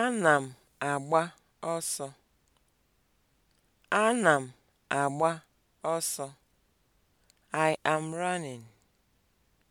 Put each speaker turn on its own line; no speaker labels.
Ana m agba ọsọ. Ana m agba ọsọ. I am running.